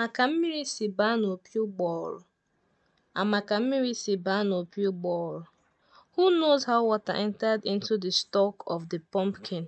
maka ka mmiri si baa n'opi ụgbọghoro and maka ka mmiri si baa n'opi ụgbọghoro Who knows how water entered into the stalk of the pumpkin?